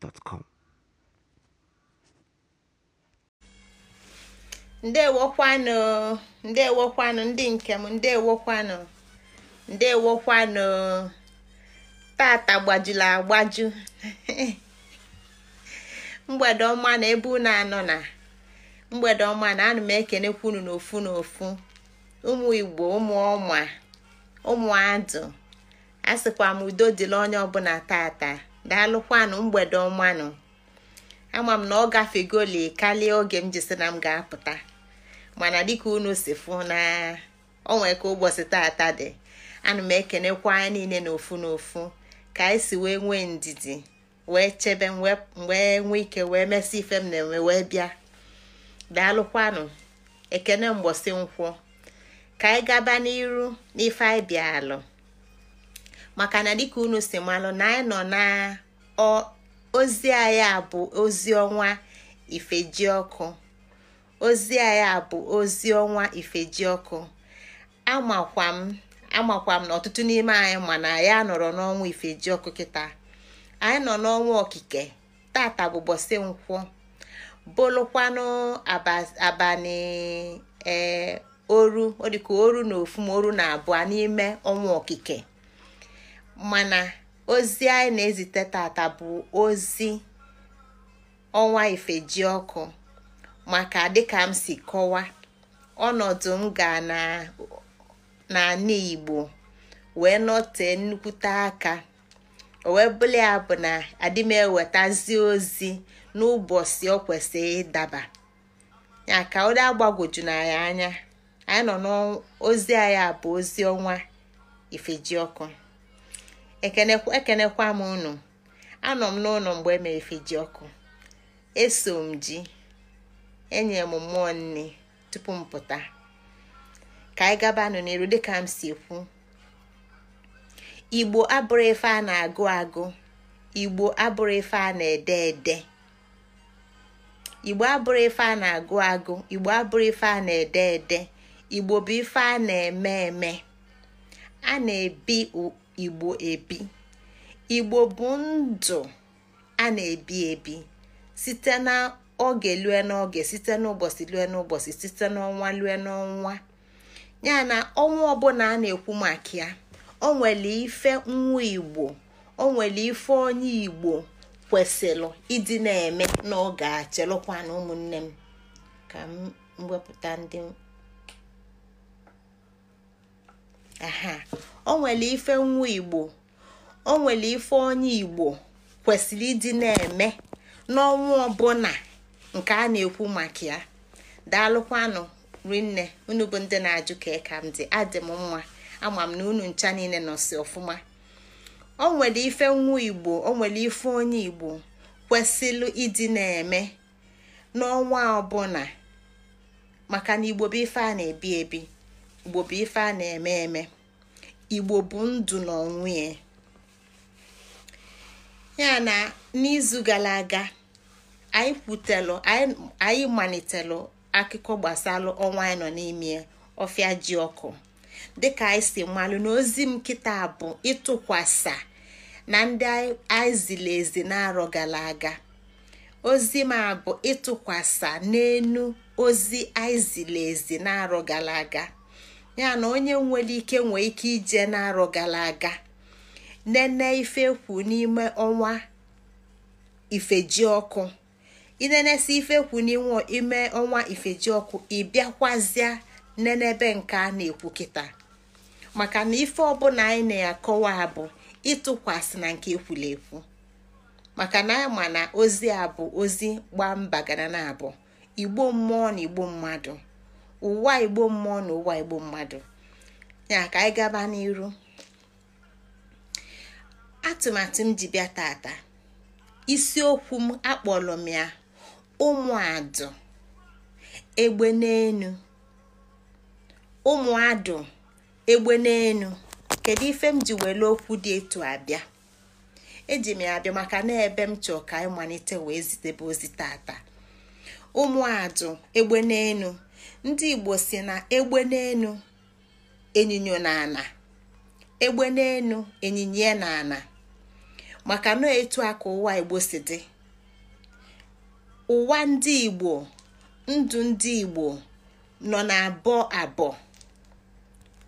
gmail.com ndewokwanụ ndewokwanụ ndị nkem ndewokwanụ ndewokwanụ tata gbajuru agbaju mgbede ọma na ebe unu anọ na mgbede ọma na ana m ekenekwa ofu n'ofu n'ofu ụmụ igbo ụmụ ọma ụmụ adụ a sịkwa m udo dịla onye ọbụla tata daalụkwanụ mgbede ọmanụ ama m na ọ gafegoli kalie oge m jisi na m ga-apụta mana dịka unu si fụ na onwe ka ụbọchị tata dị ana m ekenekwa na niile n'ofu n'ofu ka anyị si wee nwee ndidi wee chebe wee nwee ike wee mesị ife m na-enwe wee bịa daalụkwanụ ekene mgbọsị nkwọ ka anyị gaba n'iru n'ife anyị bịa alụ maka na dịka unu si malụ na anyị nọ na ozi anyị a bụ ozi ọnwa ifejiọkụ ozi anyị a bụ ozi ọnwa ifejiọkụ amakwa m na ọtụtụ n'ime anyị mana ya nọrọ n'ọnwụ n'ọnwa kita anyị nọ n'ọnwa okike tata bụ bọsị nkwụ bụlụkwanụ abalị ee oru ọ dịka oru na ofu na abụọ n'ime ọnwa okike mana ozi anyị na-ezite tata bụ ozi ọnwa ifeji ọkụ maka dịka m si kọwa ọnọdụ m ga n'ala Igbo wee nọtee nnukwute aka o wee bụla ya bụ na adị m ewetazi ozi n'ụbọchị o kwesịrị ịdaba ya ka ụdị agbagoju na ya anya anyị nọ n'ozi anyị bụ ozi ọnwa ifeji ekenekwa m unu anọ m n'ụlọ mgbe e efi ji ọkụ eso m ji enye m mmụọ nne tupu m pụta ka anyị gabanụ n'elu dịka m si ekwu igbo abụrụ ife a na-agụ agụ igbo abụrụ ife a na-ede ede igbo abụrụ ife a na-agụ agụ igbo abụrụ ife a na-ede ede igbo bụ ife a na-eme eme a na-ebi igbo ebi igbo bụ ndụ a na-ebi ebi site na oge lue n'oge site n'ụbọchị lue n'ụbọchị site n'ọnwa lue n'ọnwa ya na ọnwa ọbụla a na-ekwu maka ya o nwere ife nwa igbo o nwere ife onye igbo kwesịrị ịdị na-eme n'oge a chelụkwana ụmụnne m ka m wepụta ndị o ife nwa igbo o ife onye igbo kwesịrị ịdị na-eme n'ọnwa ọbụla nke a na-ekwu maka ya daalụkwanụ rinne unu bụ ndị na-ajụ ka ka m dị adị m mma ama m na unu ncha niile nọsi ọfụma o ife nwa igbo onwere ife onye igbo kwesịrị ịdị na-eme n'ọnwa ọbụla maka na igbo bụ ife a na-ebi ebi igbo bụ ife a na-eme eme igbo bụ ndụ na ọnwụ ya na n'izu gara aga anyị kwutelụ anyị malitelụ akụkọ gbasalụ ọnwa anyị nọ n'ime ọfịa ji ọkụ dịka anyị si malụ na ozi m bụ ịtụkwasa na ndị anyị ziri ezi n'arọ gara ozi m ịtụkwasa n'enu ozi anyị n'arọ gara aga ya na onye nwere ike nwee ike ije n'arọ gara aga nene ife kwu n'ime ọnwa ifeji ọkụ si ife kwu n'ime ọnwa ifeji ọkụ ịbịakwazịa nenebe nke a na-ekwu kịta maka na ife ọbụla anyị na-akọwa bụ ịtụkwasị na nke ekwula ekwu maka na ama na ozi a bụ ozi gbaa mba gara na abụ igbo mmụọ na igbo mmadụ ụwa igbo mmụọ na ụwa igbo mmadụ ya ka anyị gaba n'iru atụmatụ m ji bịa tata isiokwu m akpọrọ m ya ụmụadụ egbe n'enu ụmụadụ egbe n'enu kedu ife m ji were okwu dị etu abịa eji m ya abịa maka na ebe m chọọ ka anyị malite wee zitebe ozi tata ụmụadụ egbe n'enu ndị igbo si na egbe n'enu enyinyo na ana egbe na ana maka na etu aka ụwa igbo si dị ụwa ndị igbo ndụ ndị igbo nọ na abụọ abụọ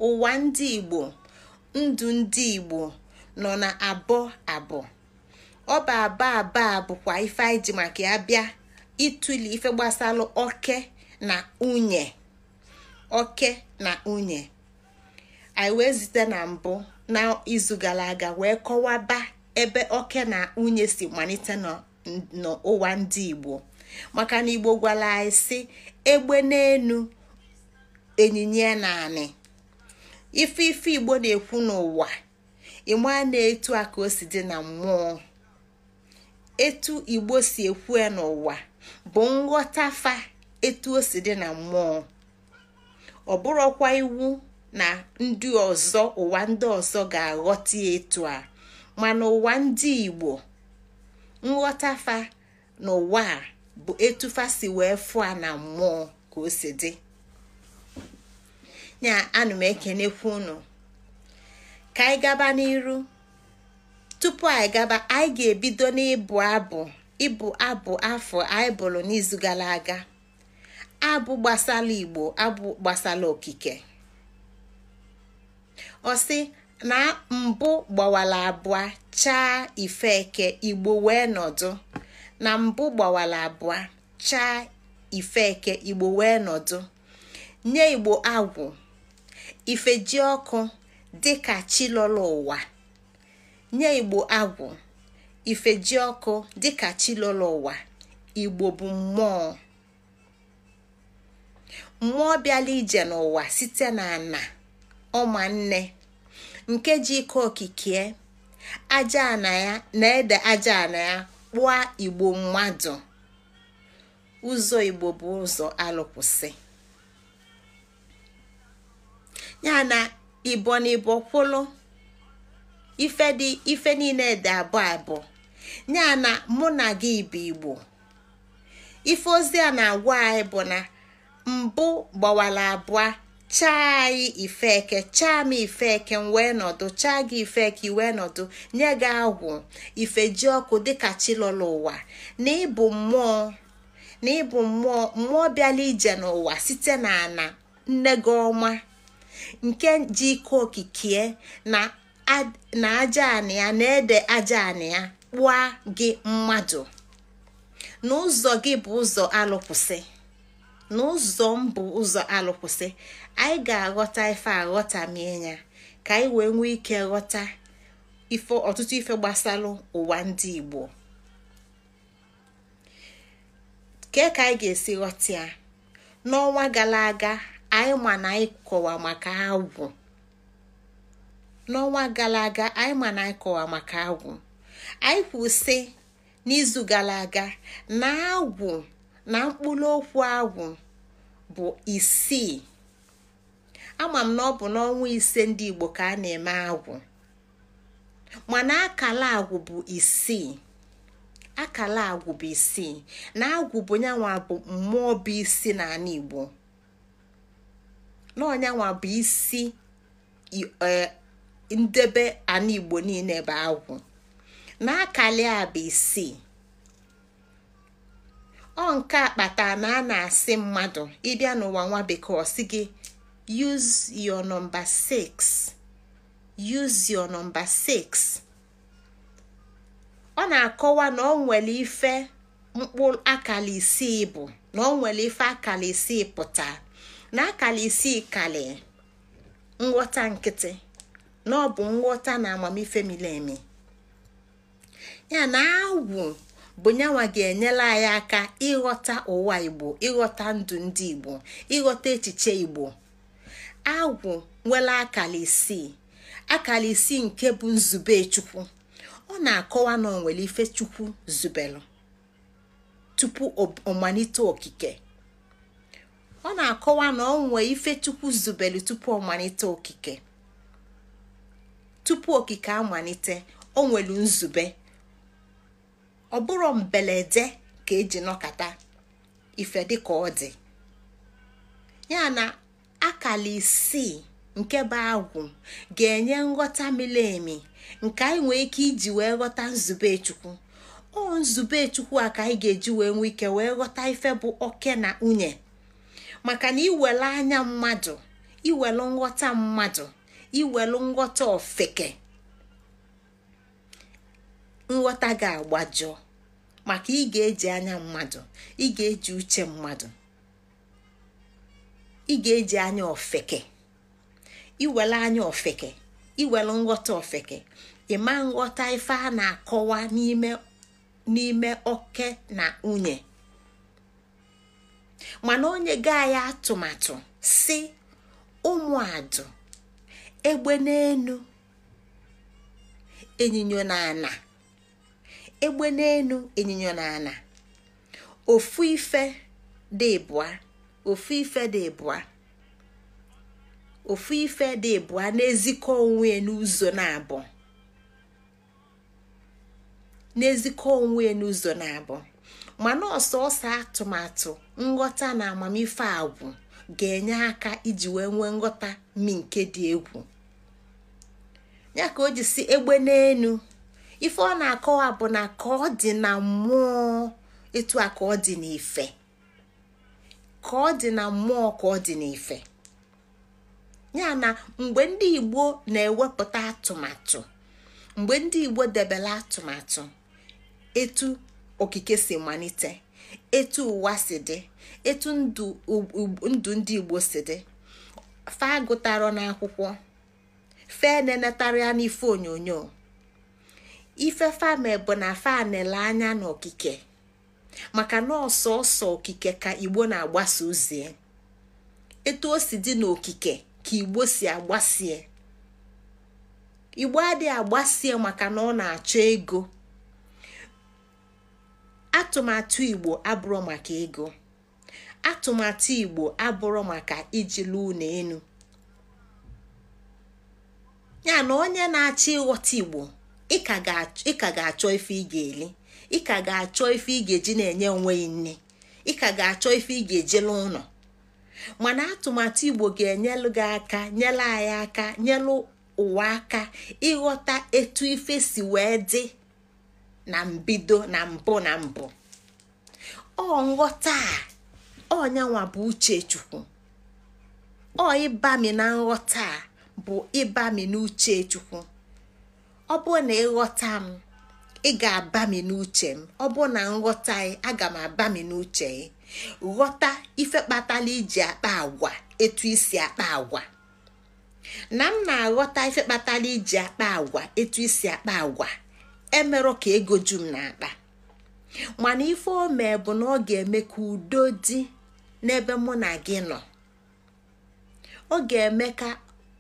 ụwa ndị igbo ndụ na abụọ abụọ ọ bụ aba bụkwa ife anyị ji maka ya bịa ituli ife gbasara oke na unye oke na unye anyị wee zite na mbụ n'izu gara aga wee kọwaba ebe oke na unye si malite n'ụwa ndị igbo maka na igbo gwara anyị si egbe n'enu ịnyịnya naanị ife ife igbo na-ekwu n'ụwa ịmaa na-etu a ka dị na mmụọ etu igbo si ekwu n'ụwa bụ nghọta etu o dị na mmụọ ọ bụrụkwa iwu na ndị ọzọ ụwa ndị ọzọ ga-aghọta etu a mana ụwa ndị Igbo nghọtafa ụwa a bụ fa si wee a na mmụọ ka o si dị ya anụ m ekenekwu unu ka anyị gaba n'iru tupu anyị gaba anyị ga-ebido n'ịbụ abụ ịbụ abụ afọ anyị n'izu gara aga abụ gbasala igbo abụ gbasala okike ọsị na mbụ gbawala abụọ chaa ifeke igbo wee nọdụ na mbụ gbawala abụọ chaa ifeke igbo wee nọdụ nye igbo agwụ ifeji ọkụ dịka chilolo ụwa nye igbo agwụ ifeji ọkụ dịka chilolo ụwa igbo bụ mmụọ mmụọ bịala ije n'ụwa site na ana ọma nke ji ike okikie aja ana ya na-ede aja ana ya kpụọ igbo mmadụ ụzọ igbo bụ ụzọ alụkwụsị ya na ibo na ibo ife niile dị abụọ abụọ ya na mụ na gị bụ igbo ife ozi a na-agwa anyị bụ na mbụ gbawara abụọ chaa yi ifeke chaa m ifeke m wee nọdụ chaa gị ifeke wee nọdụ nye gị agwụ ifeji ọkụ dịka chilọla ụwa na ịbụ mmụọ na ịbụ mmụọ mmụọ bịala ije n'ụwa site na ana nne gị ọma nke ji ike okikie na aja anị ya na ede aja anị ya kpụa gị mmadụ n'ụzọ gị bụ ụzọ alụkwụsị n'ụzọ mbụ ụzọ alụkwụsị anyị ga-aghọta ife aghọta ya ka anyị wee nwee ike ghọta ife ọtụtụ ife gbasalụ ụwa ndị Igbo kee ka anyị ga-esi ghọta ya n'ọnwa gara aga anyị ma na anyị kọwa maka agwụ n'ọnwa gara aga anyị ma na anyị kọwa maka agwụ anyị kwụsị n'izu gara aga na agwụ na mkpụrụ okwu ahụ bụ isii ama m na ọ bụ n'ọnwa ise ndị Igbo ka a na-eme agwụ mana akala agwụ bụ isii akala agwụ bụ isii na agwụ bụ nyanwa bụ mmụọ bụ isi n'ala Igbo n'ọnyanwa bụ isi e, ndebe ala Igbo niile bụ agwụ na akala a bụ isii ọ nke akpata na a na-asị mmadụ ịbịa n'ụwa nwa bekee ọ sị gị use your number 6 use your number 6 ọ na-akọwa na ọ nwere ife mkpụrụ akara isii bụ na ọ nwere ife akara isii pụta na akara isii kali nghọta nkịtị na ọ bụ nghọta na amamife miri ya na awụ bụ nyanwa ga-enyela anyị aka ịghọta ụwa igbo ịghọta ndụ ndị igbo ịghọta echiche igbo agwụ nwere akara isii akara isii nke bụ nzube chukwu ọ na-akọwa na ọ nwere ife chukwu zubelụ tupu ọmalite okike ọ na-akọwa na ọ nwee ife chukwu zubelụ tupu ọmalite okike tupu okike amalite o nwere nzube ọ bụrụ mbelede ka eji nọkata ife dịka ọ dị ya na akala isii nke bụ agwụ ga-enye nghọta miri emi nke anyị nwee ike iji wee ghọta nzube chukwu o nzube chukwu a ka anyị ga-eji wee nwee ike wee ghọta ife bụ oke na nwunye maka na iwele anya mmadụ iwelu nghọta mmadụ iwelu nghọta ofeke nghọta ga-agbajọ maka ị ga-eji anya mmadụ ị ga-eji uche mmadụ ị ga-eji anya ofeke iwele anya ofeke iwele nghọta ofeke ịma nghọta ife a na-akọwa n'ime oke na nwunye mana onye gaa ya atụmatụ si ụmụadụ egbe n'enu enyinyo na ana egbe n'elu ịnyịnya n'ala ofu ife dị ofu ife dị ịbụa ofu ife dị ịbụa na-ezikọ onwe n'ụzọ na-abụ na-ezikọ onwe n'ụzọ na-abụ mana ọsọ ọsọ atụmatụ nghọta na amamife agwụ ga-enye aka iji wee nwee nghọta mi nke dị egwu ya ka o ji si egbe n'elu ife ọ na-akọwa bụ na ka ọ dị na mmụọ etu a ka ọ dị na mmụọ ka ọ dị ya na mgbe ndị igbo na-ewepụta atụmatụ mgbe ndị igbo debela atụmatụ etu okike si malite etu ụwa si dị etu ndụ ndị igbo si dị fa agụtara n'akwụkwọ fe na-enetara n'ife onyonyo ife fame bụ na fanele anya n'okike maka na ọsọọsọ okike ka igbo na-agbasa ozie etu o si dị n'okike ka igbo si agbasie igbo adịghị agbasie maka na ọ na-achọ ego atụmatụ igbo abụrụ maka ego atụmatụ igbo abụrụ maka ijilu ụlọ enu ya na onye na-achọ ịghọta igbo ị ka ga-achọ ife ị ga-eli ị ka ga-achọ ife ị ga-eji na-enye onwe gị nne ị ka ga-achọ ife ị ga-ejela ụlọ mana atụmatụ igbo ga-enyelụ gị aka nyele anyị aka nyelụ ụwa aka ịghọta etu ife si wee dị na mbido na mbụ na mbụ ọ nghọta a ọnyanwa bụ uche chukwu ọ ịbami na nghọta bụ ịbami n'uche chukwu ọ bụrụ na ịghọta m ị ga-abami n'uche m ọ bụrụ na nghọta ị aga m abami n'uche ị ghọta ife kpatala iji akpa agwa etu isi akpa agwa na m na-aghọta ife kpatala iji akpa agwa etu isi akpa agwa emerụ ka ego ju m na-akpa mana ife o mee bụ na ọ ga-eme ka udo dị n'ebe mụ na gị nọ ọ ga-eme ka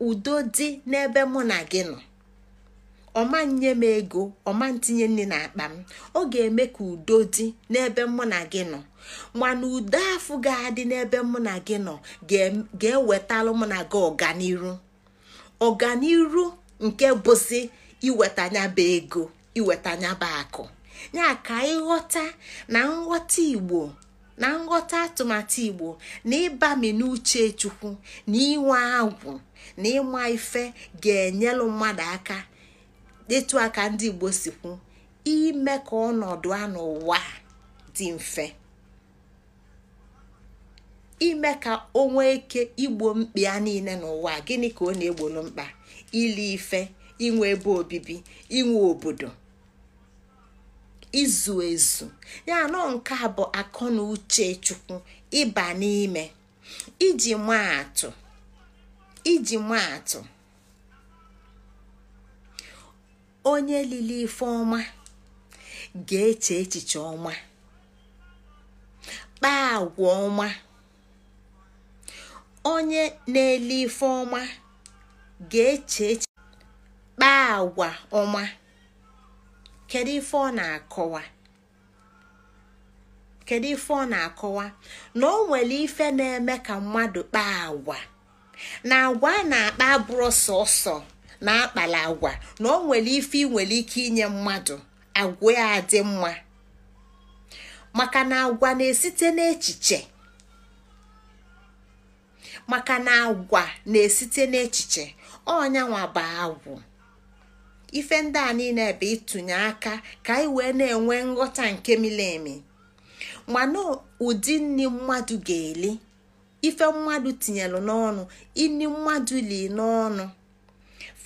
udo dị n'ebe mụ na gị nọ ọma nye m ego ọma ntinye na n'akpa m ọ ga-eme ka udo dị n'ebe mụ na gị nọ mana udo afụ ga-adị n'ebe mụ na gị nọ ga-ewetalụ mụ na gị ọganiru ọganiru nke bụzi iwetanyaba ego iwetanyaba akụ ya ka ịghọta na nghọta igbo na nghọta atụmatụ igbo na ịbami n'uche chukwu na inwe agwụ na ịma ife ga-enyelụ mmadụ aka etu aka ndị igbo si kwu ime ka ọnọdụ a n'ụwa dị mfe ime ka o nwee ike igbo mkpi ya niile n'ụwa gịnị ka ọ na-egbolu mkpa ili ife inwe ebe obibi inwe obodo izu ezu ya nọ nke a bụ akọ na uche chukwu ịba n'ime iji maa atụ atụ onye lili ife ọma ga-eche echiche ọma kpaa agwa ọma onye na-ele ife ọma ga-eche echiche kpaa agwa ọma kedu ife ọ na-akọwa kedu ife ọ na-akọwa na o nwere ife na-eme ka mmadụ kpaa agwa na agwa a na-akpa abụrụ sọsọ na akpala agwa na ọ nwere ife nwere ike inye mmadụ agwa ya mma maka na agwa na-esite n'echiche maka na agwa esite n'echiche ọnyanwa bụ agwụ ife ndị a niile bụ ịtụnye aka ka anyị wee na-enwe nghọta nke miri emi mana ụdị nri mmadụ ga-eli ife mmadụ tinyelu n'ọnụ ini mmadụ li n'ọnụ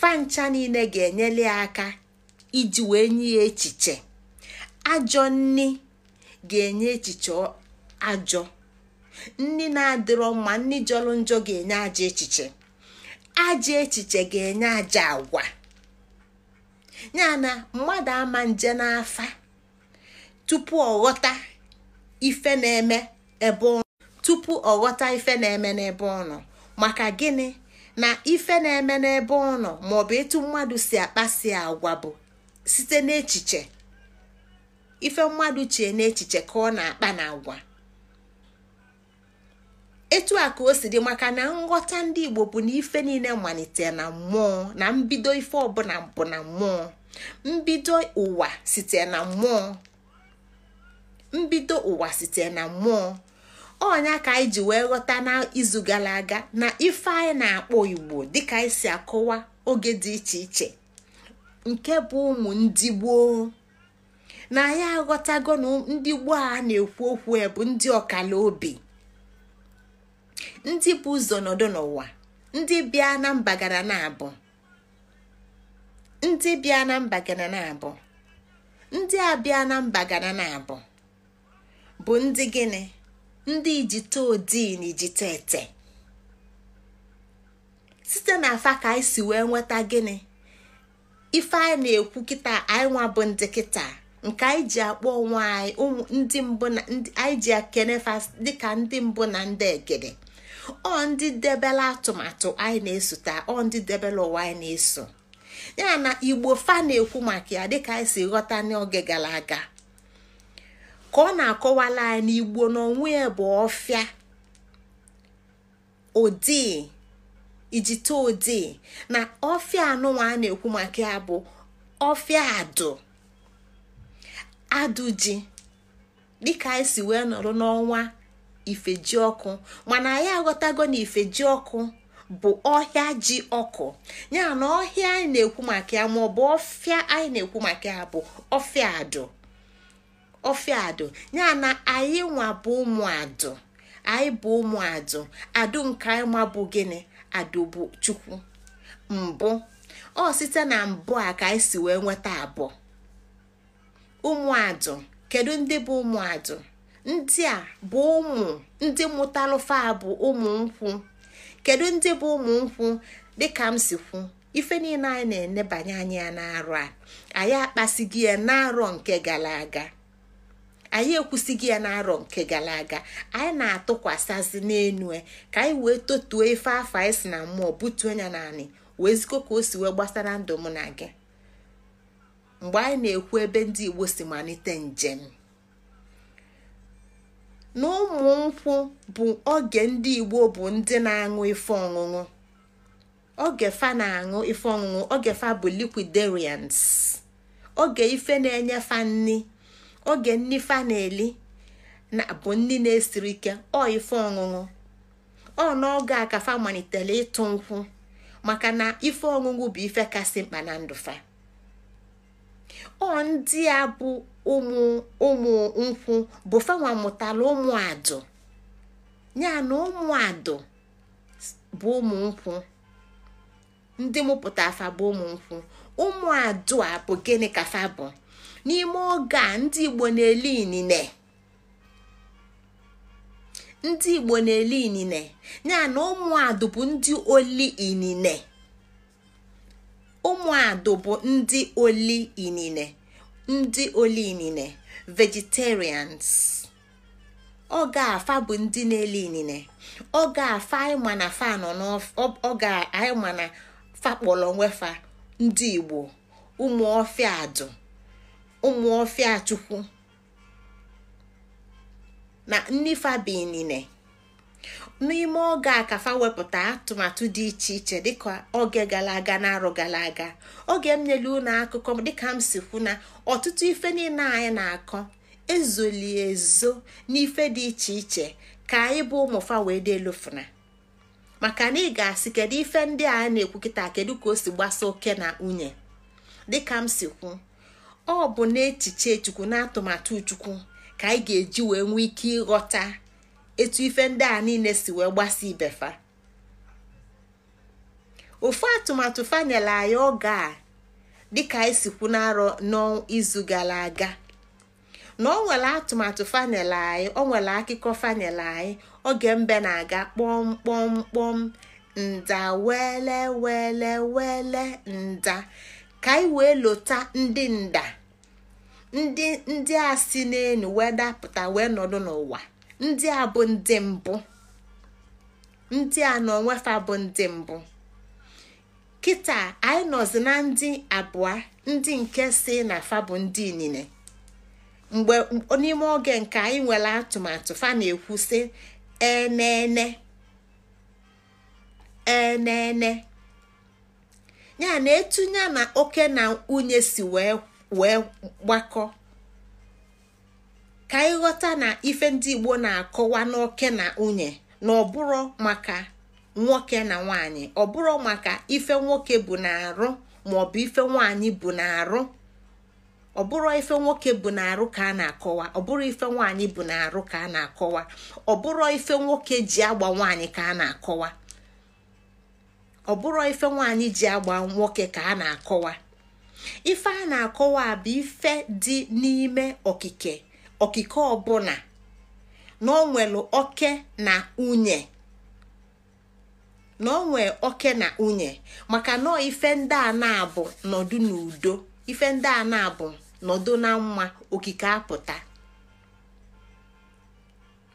fancha niile ga enyele aka iji wee nye ya echiche ajọ nni ga-enye echiche ajọ nni na-adịrọ mma nni jọrọ njọ ga-enye ajọ echiche aja echiche ga-enye ajọ agwa ya na mmadụ ama nje n'afa tupu ọghọta ife na-eme ebe ọnụ tupu ọghọta ife na-eme n'ebe ọnụ maka gịnị na ife na-eme n'ebe ọ nọ maọbụ etu mmadụ si akpasi agwa bụ site n'echiche ife mmadụ chee n'echiche ka ọ na-akpa na agwa etu a ka o si dị maka na nghọta ndị Igbo bụ na ife niile malite na mmụọ na mbido ife ọbụla bụ na mmụọ mbido ụwa site na mmụọ mbido ụwa site na mmụọ ọnya ka anyị ji wee ghọta n'izu gara aga na ife anyị na-akpọ igbo dịka anyị si akọwa oge dị iche iche nke bụ ụmụ ndị gboo na ya aghọtago na ndị gboo a na-ekwu okwu bụ ndị ọkala obi ndị bụ ụzọ nọdụ n'ụwa ndị bịa na mba na abụ ndị bịa na mba na abụ ndị a bịa na mba gara na abụ bụ ndị gịnị ndị ijite odii na site na afa ka anyị si wee nweta gịnị ife anyị na-ekwu kịta anyị nwa bụ ndị kịta nke anyị ji akpọ onwe anyị ndị mbụ na anyị ji akenefa dịka ndị mbụ na ndị egede ọ ndị debela atụmatụ anyị na taa ọ ndị debela ụwa anyị na-eso ya na igbo fa na-ekwu maka ya dịka anyị si ghọta n'oge gara aga ka ọ na-akọwala anyị n'igbo n'onwe ya bụ ọfịa ụdị ijite ụdị na ọfịa anụnwa a na-ekwu maka ya bụ ọfịa adụ adụ ji dịka anyị si wee nọrọ n'ọnwa ifeji ọkụ mana anyị aghọtago na ifeji ọkụ bụ ọhịa ji ọkụ ya na ọhịa anyị na-ekwu maka ya maọbụ ọfịa anyị na-ekwu maka ya bụ ọfịa adụ ofiadụ ya na anyị nwa bụ ụmụadụ anyị bụ ụmụadụ adụ nke anyị bụ gịnị adụ bụ chukwu mbụ ọ site na mbụ a ka anyị si wee nweta abụọ ụmụadụ kedu ndị bụ ụmụadụ ndị a bụ ụmụ ndị mụtalụfa bụ ụmụ nkwụ kedu ndị bụ ụmụ nkwụ dịka m si kwu ife niile anyị na-enebanye anya ya n'arọ a anyị akpasigi ya n'arọ nke gara aga anyị ekwusịghị ya na nke gara aga anyị na-atụkwasịzi n'enu e, ka anyị wee totuo ife afọ anyị si na mmụọ butuo ya naanị wee zikọ ka o si wee gbasara ndụ mụ na gị mgbe anyị na-ekwu ebe ndị igbo si malite njem na ụmụ nkwụ bụ oge ndị igbo bụ ndị na-aṅụ ife ọṅụṅụ oge fa na-aṅụ ife ọṅụṅụ oge fa bụ liquidarians oge ife na-enye fa nni oge ndị fa na-eli na bụ ndị na-esiri ike ọ ife ọṅụṅụ ọ n'oge a ka fa malitere ịtụ nkwụ maka na ife ọṅụṅụ bụ ife kasị mkpa na ndụ fa ọ ndị a bụ ụmụ ụmụ nkwụ bụ fanwa mụtara ụmụ adụ ya na ụmụ adụ bụ ụmụ nkwụ ndị mụpụta afa bụ ụmụ nkwụ ụmụ adụ a bụ gịnị ka fa bụ n'ime oge a ndị Igbo na-eli inine ndị Igbo na-eli inine ya na ụmụadụ bụ ndị oli inine ụmụadụ bụ ndị oli inine ndị oli inine vegetarians oge afa bụ ndị na-eli inine oge afa ịma na fa nọ n'oge ịma na fa kpọrọ onwe fa ndị Igbo ụmụ ọfịa adụ ụmụ ọfịa chukwu na nnifabinine n'ime oge a ka fa wepụta atụmatụ dị iche iche dịka oge gara aga na arụ gara aga oge m nyere unu akụkọ dịka m si kwu na ọtụtụ ife niile anyị na-akọ ezoli ezo n'ife dị iche iche ka anyị bụ ụmụfa wee dị elufuna maka na ị ga-asị kedu ife ndị a na-ekwu kịta kedu ka o si gbasa oke na nwunye dịka m si kwu ọ bụ n'echiche chukwu na atụmatụ chukwu ka anyị ga-eji wee nwee ike ịghọta etu ife ndị a niile si wee gbasa ibefa ofu atụmatụ fanel anyị oge a dịka anyị si kwu n'arọ n'izu gara aga na ọ nwere atụmatụ fanel anyị ọ nwere akụkọ fanel anyị oge mbe na-aga kpọm kpọm kpọm nda wele wele wele nda ka anyị wee lota ndị nda ndị ndị a si n'elu wee dapụta wee nọdụ n'ụwa ndị a bụ ndị mbụ ndị a na onwefa bụ ndị mbụ kịta anyị nọzi na ndị abụọ ndị nke si na fa bụ ndị inine mgbe n'ime oge nke anyị nwere atụmatụ fa na-ekwu sị enene enene ya na etunye na oke na nwunye si wee wee gbakọ ka ịghọta na ife ndị igbo na-akọwa n'oke na nwunye na ọbụrụ maka nwoke na nwanyị ọbụrụ maka ife nwoke bụ na-arụ maọbụ ife nwanyị bụ na-arụ ọbụrụ ife nwoke bụ na-arụ ka a na-akọwa ọbụrụ ife nwaanyị bụ na-arụ ka a na-akọwa ọbụrụ ife nwoke ji agba nwaanyị ka a na-akọwa ọ bụrụ ife nwaanyị ji agba nwoke ka a na-akọwa ife a na-akọwa bụ ife dị n'ime okike okike ọbụla na onwelu oke na unye na onwe oke na unye maka na ife ndị a na-abụ nọdụ n'udo ife ndị a na-abụ nọdụ na mma okike apụta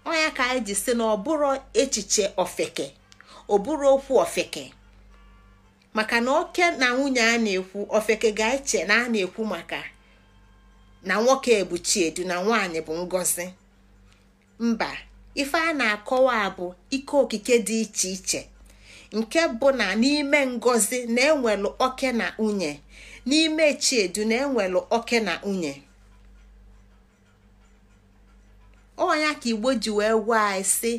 ọnya ka anyị ji si na ọ echiche ofeke ọ bụrụ okwu ofeke maka na oke na nwunye a na-ekwu ofeke ga-eche na a na-ekwu maka na nwoke bụ chiedu na nwanyị bụ Ngozi. mba ife a na-akọwa bụ ike okike dị iche iche nke bụ na n'ime Ngozi na-enwelụ oke na nwunye n'ime chiedu na-enwelụ oke na nwunye ọnya ka igbo ji wee gwa anyị si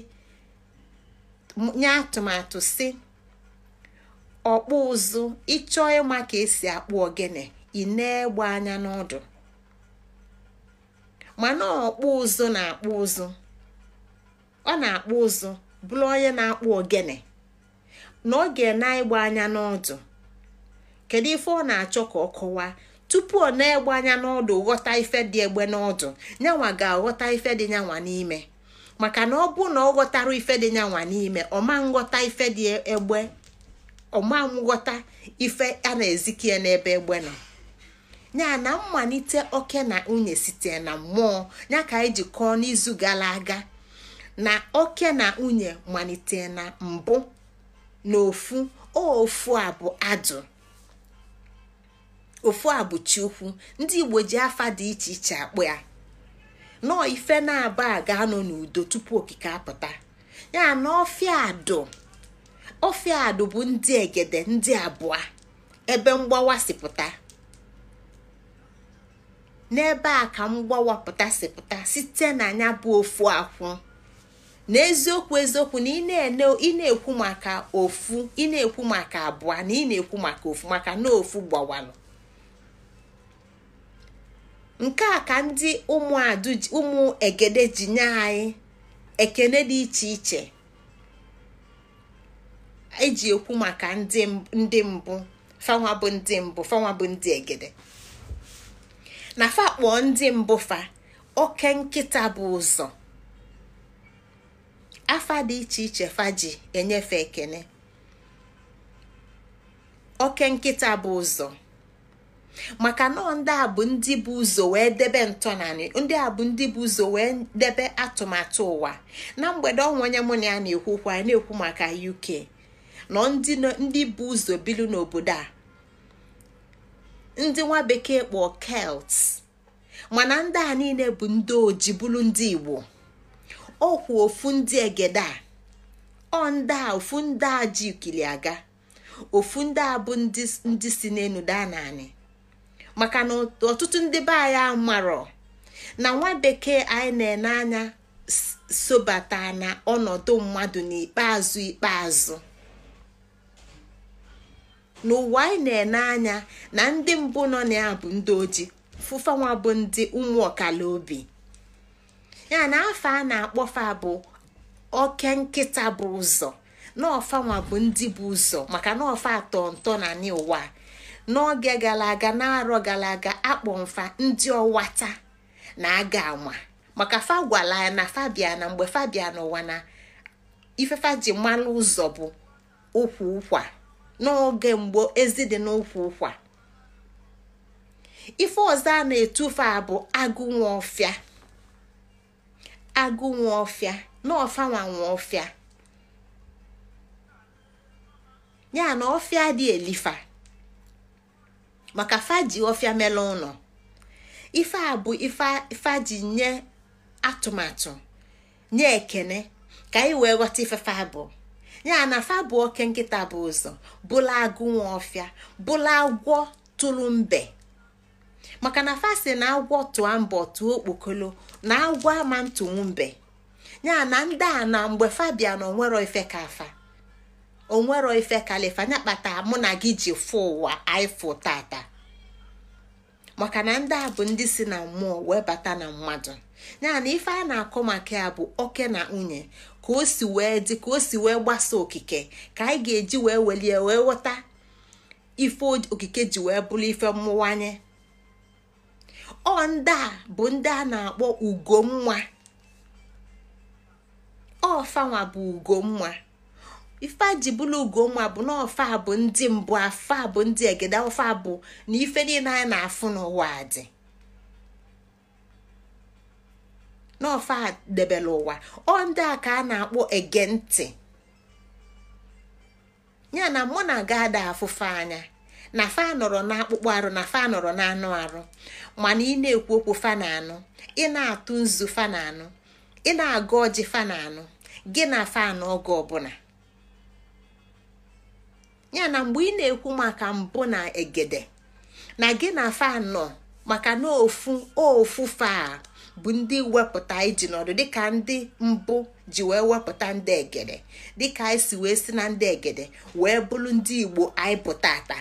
nye atụmatụ si ọkpụ ụzụ ịchọ ịma ka esi akpụ ogene ị na-egbe anya n'ọdụ mana ọkpụ ụzụ na-akpụ ụzụ ọ na-akpụ ụzụ bụrụ onye na-akpụ ogene na ọ ga-na-egbe anya n'ọdụ kedu ife ọ na-achọ ka ọ kọwaa tupu ọ na-egbe anya n'ọdụ ghọta ife dị egbe n'ọdụ nyanwa ga-aghọta ife dị nyanwa n'ime maka na ọ bụ na ọ ghọtara ife dị nyanwa n'ime ọ ma nghọta ife dị egbe ọma ife a na-ezikie n'ebe egbe nọ ya na mmalite oke na nwunye site na mmụọ ya ka anyị e ji n'izu gara aga na oke na nwunye malite na mbụ na ofu ofu a bụ adụ ofu a bụ Chukwu ndị igbo ji afa dị iche iche akpụ ya nọọ ife na-aba ga-anọ n'udo tupu okike apụta ya na ọfịa adụ. adụ bụ ndị egede ndị abụọ ebe mgbawa sipụta n'ebe a ka mgbawa pụta site na anya bụ ofu akwụ na eziokwu na ị na-ekwu maka ofu ị na-ekwu maka abụọ na ị na-ekwu maka ofu maka na ofu gbawanụ nke a ka ndị ụmụ egede ji nye anyị ekene dị iche iche eji ekwu maka ndị mbụ fanwa bụ ndị mbụ fanwa bụ ndị egede na fa kpọọ ndị mbụ fa oke nkịta bụ ụzọ afa dị iche iche fa ji enyefe ekene oke nkịta bụ ụzọ maka nọọ ndị a bụ ndị bụ ụzọ wee debe ntọnanị ndị a bụ ndị bụ ụzọ wee debe atụmatụ ụwa na mgbede ọnwa onye mụ na ya na-ekwukwa na-ekwu maka UK nọ ndị bụ ụzọ bilu n'obodo a ndị nwa bekee kpọ kelt mana ndị a niile bụ ndị oji bụrụ ndị igbo ọkwụ ofu ndị egede a ọ ndị a ofu ndị a ji ikili aga ofu ndị a bụ ndị si n'elu daa naanị maka na ọtụtụ ndị be anyị marọ na nwa bekee anyị na-ene anya sobata na ọnọdụ mmadụ n'ikpeazụ ikpeazụ n'ụwa anyị na-ene anya na ndị mbụ nọ na ya bụ ndị oji fụfanwa bụ ndị ụmụ ọkala obi ya na afọ a na-akpọfa bụ oke nkịta bụ ụzọ na ọfanwa bụ ndị bụ ụzọ maka na atọ ntọ na n'ụwa n'oge gara aga na-arọ gara aga akpọ mfa ndị ọwata na aga ama maka fa gwara ya na fabiana mgbe fabiana ụwa na ifefa ji malụ ụzọ bụ ụkwa ụkwa n'oge mgbe ezi dị n'ụkwụ ụkwa ife ọzọ a na-etufe a bụ agụ nwa ọfịa agụ nwa ọfịa na ọfanwa nwa ọfịa ya na ọfịa dị elifa maka faji ọfịa mele ụlọ ife a bụ ji nye atụmatụ nye ekene ka anyị wee ghọta fa ya na fa bụ oke nkịta bụ ụzọ bụla agụ nwa ọfịa bụla agwọ tụrụ mbe maka na fa si na agwọ tụọ mbọ tụọ okpokolo na agwọ ama ntụnwu mbe ya na ndị a na mgbe fa bịa na onwero ife ka afa onwero ife kalifa ya kpatara mụ na gị ji fụ ụwa aịfụ tata maka na ndị a bụ ndị si na mmụọ wee bata na mmadụ ya na ife a na-akọ maka ya bụ oke na nwunye ka o si wee dị ka o si wee gbasa okike ka anyị ga-eji wee welie wee ghọta ife okike ji wee bụrụ ife mmụwanye ọ ndị a bụ ndị a na-akpọ ugonwa ọfanwa bụ ugonwa ife ji bụrụ ugonwa bụ na ọfa bụ ndị mbụ afa bụ ndị egede ọfa bụ na ife niile anyị na-afụ n'ụwa dị n'ofe a debere ụwa ọ ndị a ka a na-akpọ ege ntị ya na mụ na aga ada afụfe anya na fa nọrọ akpụkpọ arụ na fa nọrọ anụ arụ mana ị na-ekwu okwu fa na anụ ị na-atụ nzu fa na anụ ị na-agụ ọjị fa na anụ gị na fa na oge ọbụla ya na mgbe ị na-ekwu maka mbụ na egede na gị na fa nọ maka na ofu ofu fa bụ ndị wepụta iji n'ọdụ dịka ndị mbụ ji wee wepụta ndị egede dịka anyị si wee si na ndị egede wee bụrụ ndị igbo anyị pụta ata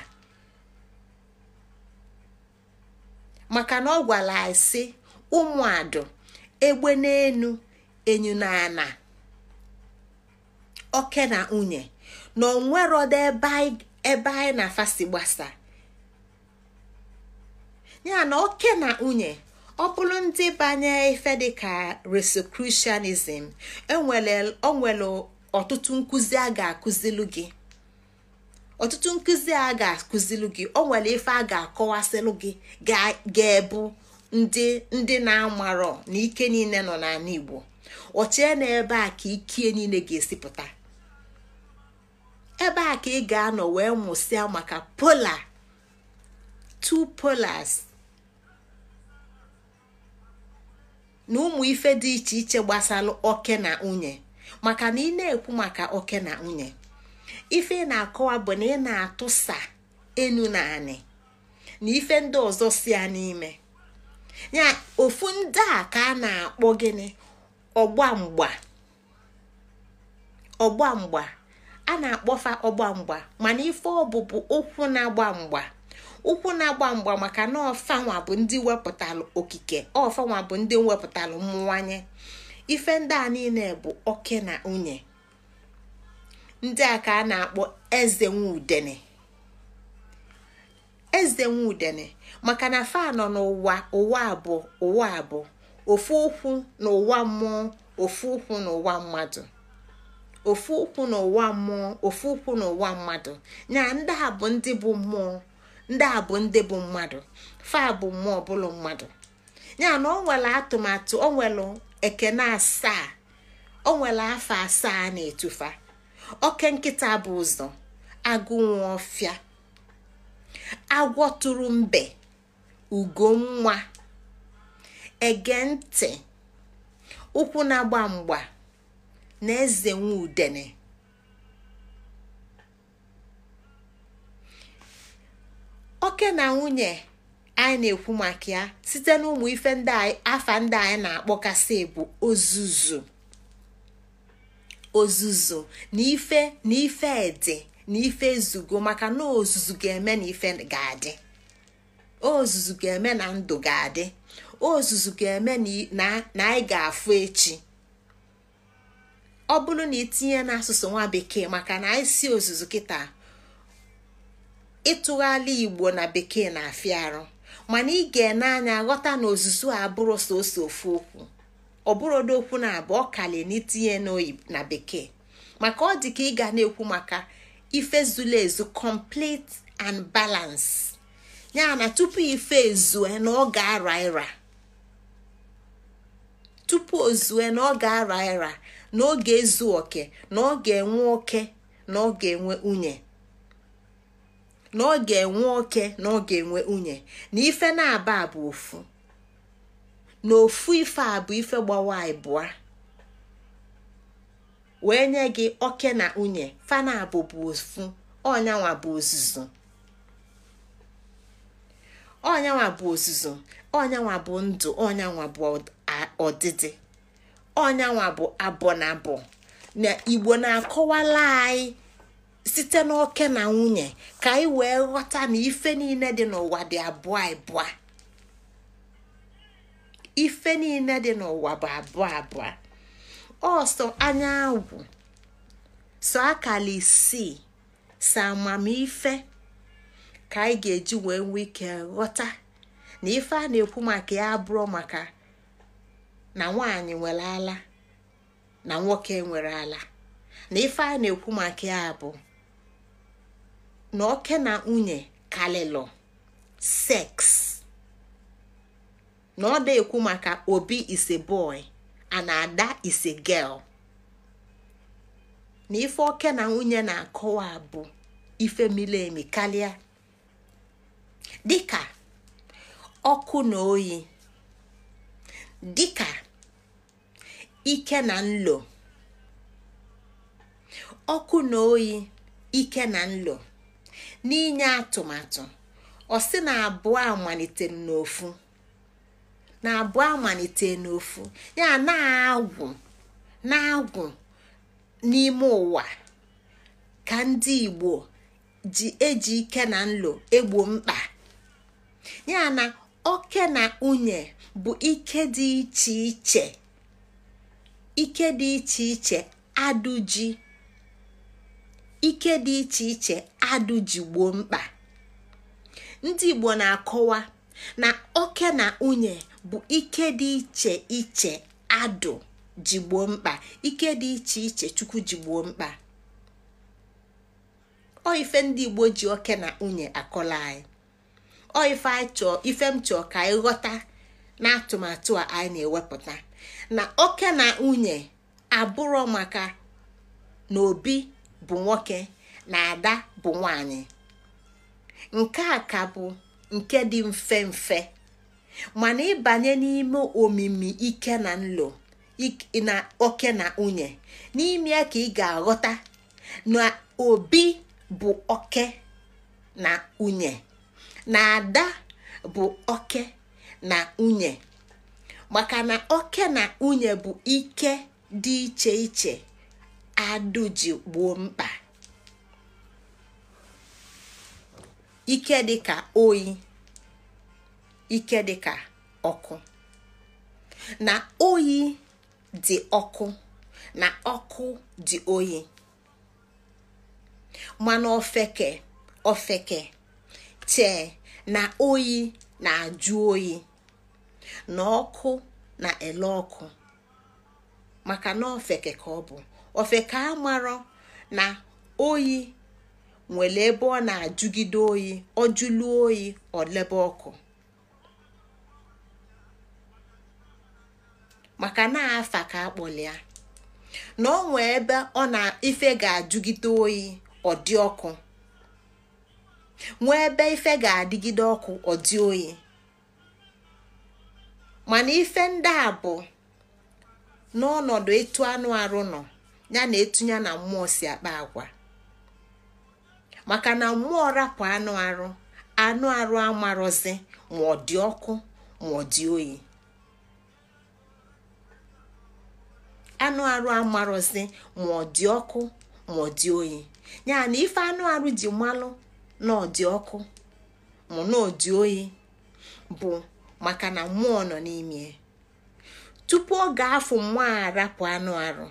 maka na ọ gwara anyị si ụmụadụ egbe n'enu enyu na-ana oke na nwunye na onwerodo ebe anyị na-afasi gbasa ya na oke na nwunye ọ bụrụ ndị banye ife dịka resocrucianism e o nwere ọtụtụ nkụzi a ga-akụzilu gị ọtụtụ nkụzi o nwere ife a ga-akọwasịlụ gị ga-ebu ndị ndị na-amarọ na ike niile nọ n'ala Igbo ọchie na ebe a ka ikie niile ga esipụta ebe a ka ị ga-anọ wee mụsịa maka polar two polars na ụmụ ife dị iche iche gbasara oke na nwunye maka na ị na-ekwu maka oke na nwunye ife ị na-akọwa bụ na ị na-atụsa enu na anị na ife ndị ọzọ si ya n'ime ya ofu ndị a ka a na-akpọ gịnị ọgbamgba a na-akpọfa ọgbamgba mana ife ọbụbụ ụkwụ na-agba mgba ukwu na-agba mgba maka na ọfanwa bụ ndị wepụtalụ okike ọfanwa bụ ndị wepụtalụ mmụwanye ife ndị a niile bụ oke na nwunye ndị a ka a na-akpọ eze nwudene eze nwudene maka na fa nọ n'ụwa ụwa abụọ ụwa abụọ ofu ukwu na ụwa mmụọ ofu ụkwụ na ụwa mmadụ ofu ụkwụ n'ụwa mmụọ ofu ụkwụ n'ụwa mmadụ ndị a bụ ndị bụ mmụọ ndị a bụ ndị bụ mmadụ fa bụ mmụọ ọbụla mmadụ ya na ọ nwere atụmatụ ọ nwere ekene asaa ọ nwere afọ asaa na-etufa oke nkịta bụ ụzọ agụ nwa ọfịa agwọ tụrụ mbe ugo nwa ege ntị ụkwụ na-agba mgba na eze nwa udene oke na nwunye anyị na-ekwu maka ya site n'ụmụ ife ndị afa ndị anyị na-akpọkasị bụ ozuzu ozuzu na ife na ife dị na ife ezugo maka na ozuzu ga-eme na ife ga-adị ozuzu ga-eme na ndụ ga-adị ozuzu ga-eme na anyị ga-afụ echi ọ bụrụ na itinye n'asụsụ nwa bekee maka na anyị si ozuzu kịta ịtụgharị igbo na bekee na-afịa arụ mana ị ga-ene anya ghọta na ozuzu a abụrụ soso ofu okwu ọ ọdọokwu okwu na abụọ kalie n'itinye na bekee maka ọ dị ka ị ga na-ekwu maka ife zuru ezu complete and balance ya na tupu ife ezue na ọ ga-ara ịra tupu ozue na ọ ga-ara ịra na ọ ga-ezu oke na ọ ga-enwe oke na ọ ga-enwe nwunye na ọ ga-enwe oke na ọ ga-enwe nwunye na ife na-aba abụ ofu na ofu ife a bụ ife gbawa ịbụa wee nye gị oke na nwunye na abụ bụ ofu ọnyanwa bụ ozuzo ọnyanwa bụ ozuzo ọnyanwa bụ ndụ ọnyanwa bụ ọdịdị ọnyanwa bụ abọ na abọ na igbo na-akọwala anyị site n'oke na nwunye ka anyị wee ghọta na ife niile dị n'ụwa dị abụọ abụọ ife niile dị n'ụwa bụ abụọ abụọ ọsọ anya agwụ so akala isii so amamife ka anyị ga-eji wee nwee ike ghọta na ife a na-ekwu maka ya abụrụ maka na nwanyị nwere ala na nwoke nwere ala na ife a na-ekwu maka ya bụ na oke na nwunye kalịlụ seks na ọ na-ekwu maka obi ise boy ana ada ise girl na ife oke na nwunye na-akọwa bụ ife mili emi karịa dịka ọkụ na oyi dịka ike na nlo ọkụ na oyi ike na nlo n'inye atụmatụ ọ sị na abụọ amalite n'ofu na abụọ amalite n'ofu ya na-agwụ na-agwụ n'ime ụwa ka ndị Igbo ji eji ike na nlo egbo mkpa ya na oke na nwunye bụ ike dị iche iche ike dị iche iche adụji ike dị iche iche adụ ji mkpa ndị igbo na-akọwa na oke na nwunye bụ ike dị iche iche adụ ji mkpa ike dị iche iche chukwu ji mkpa ọ ife ndị igbo ji oke na unye akọla anyị ọ ife m chọọ ka anyị ghọta na atụmatụ a anyị na-ewepụta na oke na nwunye abụrọ maka na obi bụ nwoke na ada bụ nwanyị nke a ka bụ nke dị mfe mfe mana ịbanye n'ime omimi ike na nlo na oke na nwunye n'ime ka ị ga-aghọta na obi bụ oke na nwunye na ada bụ oke na nwunye maka na oke na nwunye bụ ike dị iche iche adụ ji gboo mkpa ike dịka oyi ike dịka ọkụ na oyi dị ọkụ na ọkụ dị oyi mana ofeke ofeke chee na oyi na-ajụ oyi na ọkụ na ele ọkụ maka na ofeke ka ọ bụ ofe ka amarọ na oyi nwere ebe ọ na-ajụgide oyi ọ jụlụ oyi ọ lebe ọkụ maka na afa ka akpọlịa na ọ nwee ebe ọ na ife ga-ajụgide oyi ọ dị ọkụ nwee ebe ife ga-adịgide ọkụ ọ dị oyi mana ife ndị a bụ n'ọnọdụ etu anụ arụ nọ ya na etunye na mmụọ si akpa agwa maka na mmụọ rapụ anụ arụ anụ arụ ma ọ ọ dị anụ arụ ma ọ dị ọkụ ma ọ dị oyi ya na ife anụ arụ ji mmalụ na ọ dị ọkụ ma na oyi bụ maka na mmụọ nọ n'ime tupu ọ ga-afụ mmụọ arapụ anụ arụ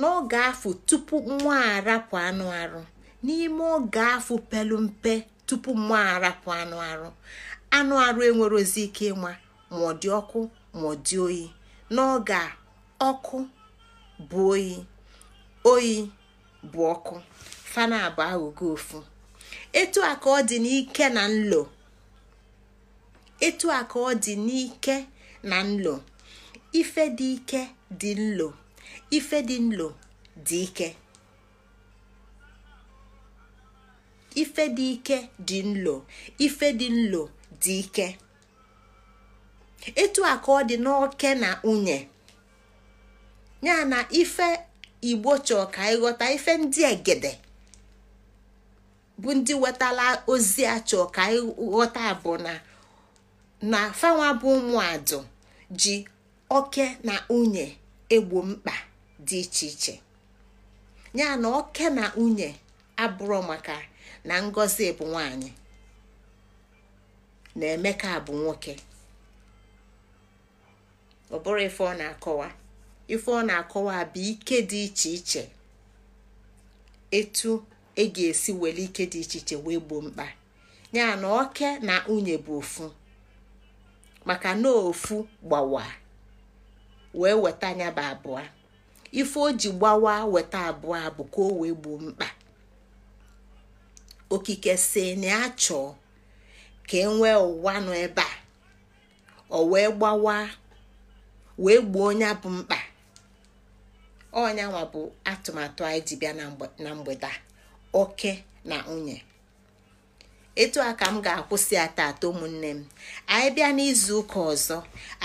n'oge afọ tupu nwa arapụ anụ arụ n'ime oge afọ pelu mpe tupu nwa arapụ anụ arụ anụ arụ enwerozi ike ịma ma ọ dị ọkụ ma ọ dị oyi n'oge ọkụ bụ oyi oyi bụ ọkụ fana abụ ofu etu a ka ọ dị n'ike na nlo etu a ka ọ dị n'ike na nlo ife dị ike dị nlo ife dị nlo dị ike nlo ife dị nlo dị etu a ka ọ dị n'oke na nwunye ya na ife igbo chọọ ka ịghọta ife ndị egede bụ ndị wetala ozi a chọọ ka ịghọta bụ na na fanwa bụ ụmụadụ ji oke na nwunye egbo mkpa dị iche iche ya na oke na nwunye abụrụ maka na ngozi bụ nwanyị na emeka bụ nwoke ọ bụrụ ife ọ na-akọwa ife ọ na-akọwa bụ ike dị iche iche etu e ga-esi were ike dị iche iche wee gbuo mkpa ya na oke na nwunye bụ ofu maka na ofu gbawa wee weta anya bụ abụọ ife o ji gbawa weta abụọ abụ ka o wee gbuo mkpa okike si na ya chọọ ka e nwee ụwa nọ ebe a ọ wee gbawa wee gbuo onye bụ mkpa ọnyanwa bụ atụmatụ anyị ji bịa na mgbede oke na nwunye etu a ka m ga-akwụsị ya atọ ụmụnne m anyị bịa n'izu ụka ọzọ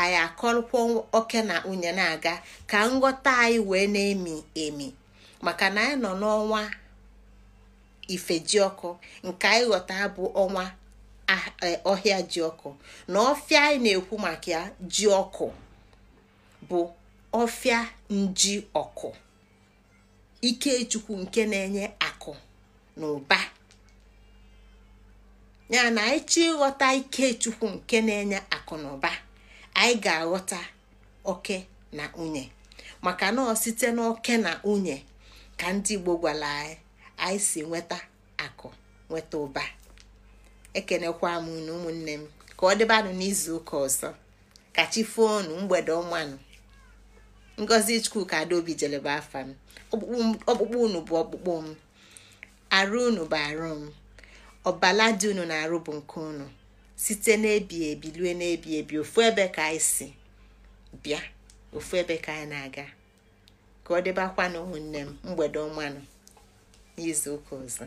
anyị akọrọkwa oke na nwunye na-aga ka nghọta anyị wee na-emi emi maka na anyị nọ n'ọnwa ifejiọkụ nke anyị ghọta bụ ọnwa e, ọhịa jiọkụ na ọfịa anyị na-ekwu maka ya bụ ọfịa nji ọkụ ikechukwu nke na-enye akụ na ụba ya na anyị ịghọta ike chukwu nke na-enye akụ na ụba anyị ga-aghọta oke na nwunye maka na ọ site n'oke na nwunye ka ndị Igbo gwara anyị anyị si nweta akụ nweta ụba ekenekwa m na ụmụnne m ka ọ dịbanụ n'izu ụka ọzọ ka chi foonu mgbede ọmanụ ngozi chukwuka adaobi jeleba afa m ọkpụkpụ unu bụ ọkpụkpụ m arụ unu bụ arụ m ọbala dị unu na-arụ bụ nke unu site n'ebi ebi lue n'ebi ebi ofu ebe ka anyị si bịa ofu ebe ka anyị na-aga ka ọ dịbakwanụ ụmụnne m mgbede ọmanụ n'izu ụka ọzọ